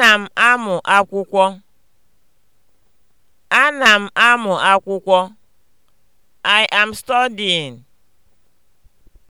Ana m amụ akwụkwọ. Ana m amụ akwụkwọ. I am studying.